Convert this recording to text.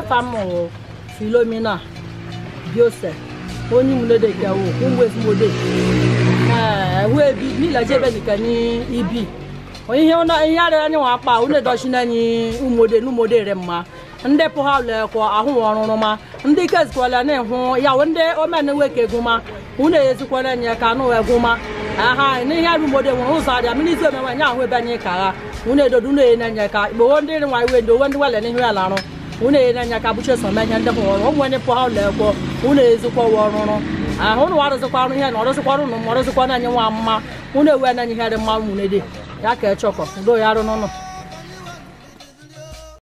afa mụrụ filomina joseph onye ìmúlédèké wo ńwé ụmụ ebi nílẹ̀ ibi ihe ihe ara anyị nwa akpa ụlọ edochina anyị umode re mma ndị pụha lekọ ahụ ọrụrụ ma ndị na ya wụ ndị omena weke ezikwala ka anụ egwụma aha n'ihe arụ umode nwere ụzọ arịa mmiri omenwe ahụ ebe anyị ka ha ụnụ edodo ụnụ enye nye ka ikpowo ndị nwa ya arụ unu na-enye aka bụchi eso menye ndị pụrụ ụmụ onye pụọ ụlọ ekwo unu ezikwa ụwa ọrụrụ ahụ ụnụ arụzịkwarụ ihe na ọrụzịkwara ụnụ ma ọrụzịkwa na anyị nwa mma unu ewe na ihe dị mma nwunye dị ya ka echọkọ do ya arụ n'ụnụ